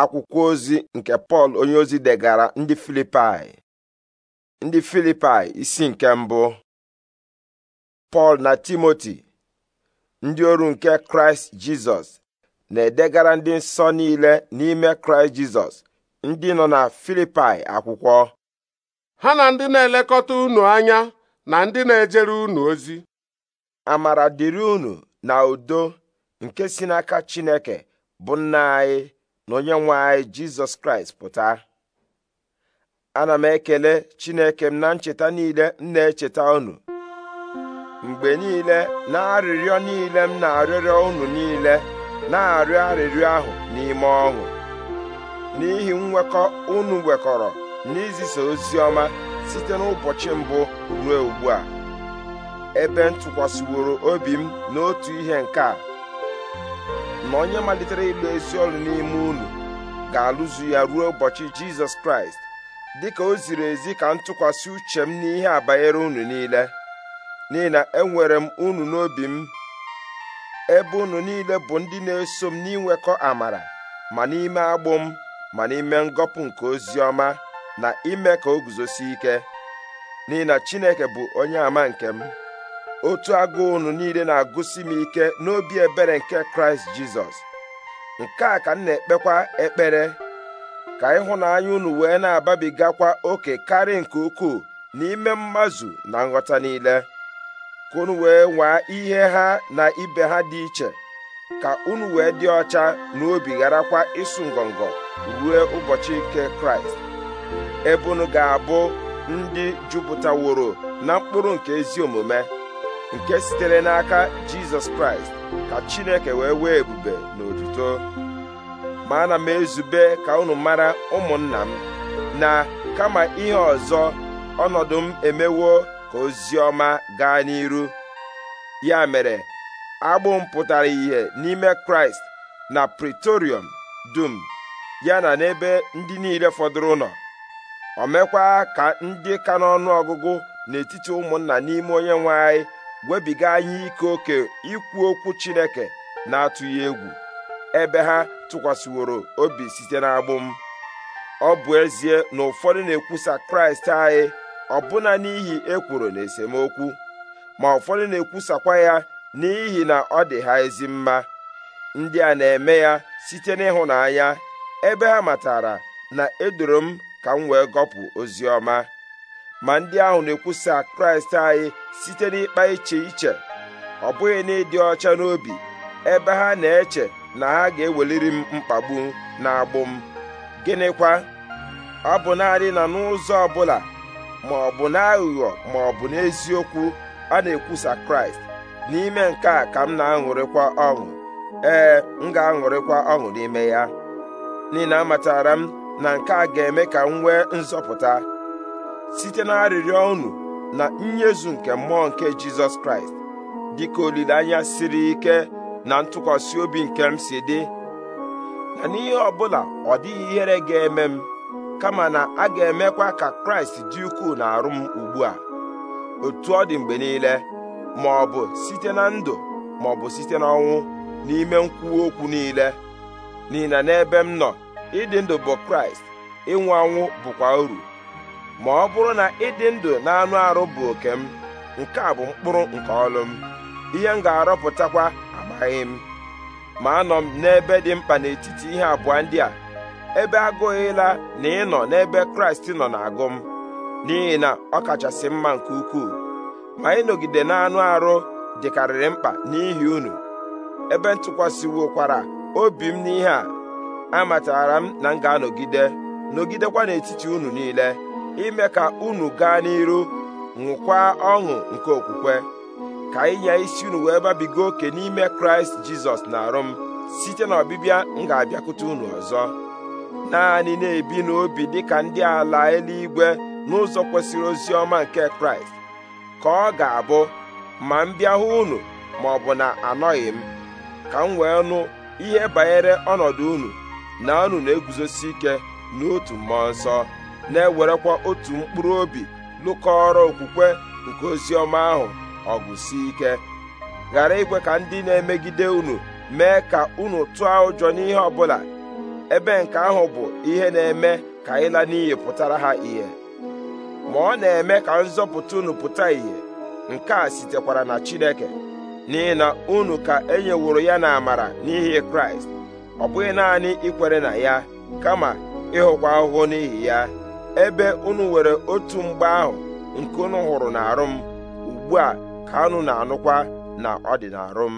akwụkwọ ozi nke pọl ozi degara ndị filipai ndị filipai isi nke mbụ pọl na timoti ndị oru nke kraịst jizọs na-edegara ndị nsọ niile n'ime kraịst jizọs ndị nọ na filipai akwụkwọ ha na ndị na-elekọta unu anya na ndị na-ejere unu ozi amara dịrị unu na udo nke si n'aka chineke bụ nna anyị na onye nwe anyị jizọs kraịst pụta ana m ekele chineke m na ncheta niile m na-echeta unu mgbe niile na arịrịọ niile m na arịrịọ unu niile na-arịọ arịrịọ ahụ n'ime ọṅụ n'ihi nwekọ unu nwekọrọ n'izisa ozi ọma site n'ụbọchị mbụ ruo ugbu a ebe ntụkwasịworo obi m n'otu ihe nke a na onye malitere ịgba esi ọrụ n'ime unu ga-alụzu ya ruo ụbọchị jizọs kraịst dịka o ziri ezi ka m tụkwasị uche m n'ihe a banyere unu niile n'ihi na enwere m unu n'obi m ebe unu niile bụ ndị na-eso m n'inwekọ amara ma n'ime agbụ m ma n'ime ngọpụ nke ozi ọma na ime ka o guzosi ike n'ihi na Chineke bụ onye ama nke m otu agụụ unu niile na-agụsi m ike n'obi ebere nke kraịst jizọs nke a ka m na-ekpekwa ekpere ka ịhụnanya unu wee na-ababigakwa oke karị nke ukwuu n'ime mmazụ na nghọta niile ka unu wee nwaa ihe ha na ibe ha dị iche ka unu wee dị ọcha na obi gharakwa ịsụ ngọngọ ruo ụbọchị nke kraịst ebe unu ga-abụ ndị jupụtaworo na mkpụrụ nke ezi omume nke sitere n'aka jizọs kraịst ka chineke wee wee ebube na otuto ma ana m ezube ka unu mara ụmụnna m na kama ihe ọzọ ọnọdụ m emewo ka ozi ọma gaa n'iru ya mere agbụ m pụtara ìhè n'ime kraịst na pretorium dum ya na n'ebe ndị niile fọdụrụ nọ o ka ndị ka n'ọnụ ọgụgụ n'etiti ụmụnna n'ime onye nwe anyị webiga anyị ike oke ikwu okwu Chineke na-atụghị egwu ebe ha tụkwasịworo obi site n'agbụ m ọ bụ ezie na ụfọdụ na-ekwusa Kraịst anyị ọbụna n'ihi ekworo na esemokwu ma ụfọdụ na-ekwusakwa ya n'ihi na ọ dị ha ezi mma ndị a na-eme ya site n'ịhụnanya ebe ha matara na edoro m ka m wee gọpụ ozi ọma ma ndị ahụ na-ekwusa kraịst anyị site n'ịkpa iche iche ọ bụghị na ịdị ọcha n'obi ebe ha na-eche na ha ga-eweliri m mkpagbu na-agbụ m gịnịkwa ọ bụ naanị na n'ụzọ ọbụla ma ọ bụ n'aghụghọ ma ọ bụ n'eziokwu a na-ekwusa kraịst n'ime nke a ka m na-aṅụrịkwa ọṅụ ee m ga-aṅụrịkwa ọṅụ n'ime ya n'ihi na amatara m na nke a ga-eme ka m nwee nzọpụta site na arịrịọ unu na nnyezu nke mmụọ nke Jizọs Kraịst dịka olileanya siri ike na ntụkwasị obi nke m si dị na n'ihe ọbụla ọ dịghị ihere ga-eme m kama na a ga-emekwa ka Kraịst dị ukwuu na-arụ m ugbu a otu ọ dị mgbe niile ma ọ bụ site na ndụ ma ọ bụ site n'ọnwụ n'ime nkwuwa okwu niile n'ihi na n'ebe m nọ ịdị ndụ bụ Kraịst ịnwụ anwụ bụkwa uru ma ọ bụrụ na ịdị ndụ na anụ arụ bụ oke m nke a bụ mkpụrụ nke ọlụ m ihe m ga-arọpụtakwa amaghị m ma anọ m n'ebe dị mkpa n'etiti ihe abụọ ndị a ebe agụụ na ịnọ n'ebe kraịst nọ na-agụ m n'ihi na ọ kachasị mma nke ukwuu ma ịnọgide n'anụ arụ dịkarịrị mkpa n'ihi unu ebe kwara, obi m n'ihe a amatara m na m ga-anọgide nọgidekwa n'etiti unu niile ime ka unu gaa n'iru ṅụkwa ọṅụ nke okwukwe ka ịnya isi unu wee babiga oke n'ime kraịst jizọs na arụ m site na ọbịbịa m ga-abịakwute unu ọzọ naanị na-ebi n'obi dịka ndị ala eluigwe n'ụzọ kwesịrị ozi ọma nke kraịst ka ọ ga-abụ ma m bịa hụ unu ma ọ bụ na anọghị m ka m wee nụ ihe banyere ọnọdụ unu na unu na-eguzosi ike n'otu mmụọ nsọ na-ewerekwa otu mkpụrụ obi lụkọrọ okwukwe nke ozi ahụ ọgụ si ike ghara ikwe ka ndị na-emegide unu mee ka unu tụọ ụjọ n'ihe ọbụla ebe nke ahụ bụ ihe na-eme ka ịla n'iyi pụtara ha ihe ma ọ na-eme ka nzọpụta unu pụta ìhè nke a sitekwara na Chineke n'ihi na unu ka e nyeworo ya na amara n'ihi Kraịst ọ bụghị naanị ikwere na ya kama ịhụkwa ahụhụ n'ihi ya ebe unu were otu mgbe ahụ nke unu hụrụ n'arụ m ugbu a ka unu na-anụkwa na ọ dị m